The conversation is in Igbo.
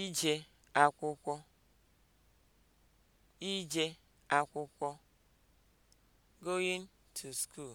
ije akwụkwọ ije akwụkwọ (going to school)